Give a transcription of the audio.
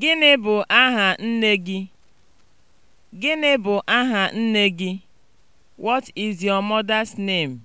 Gịnị bụ aha nne gị? Gịnị bụ aha nne gị? What is your mother's name?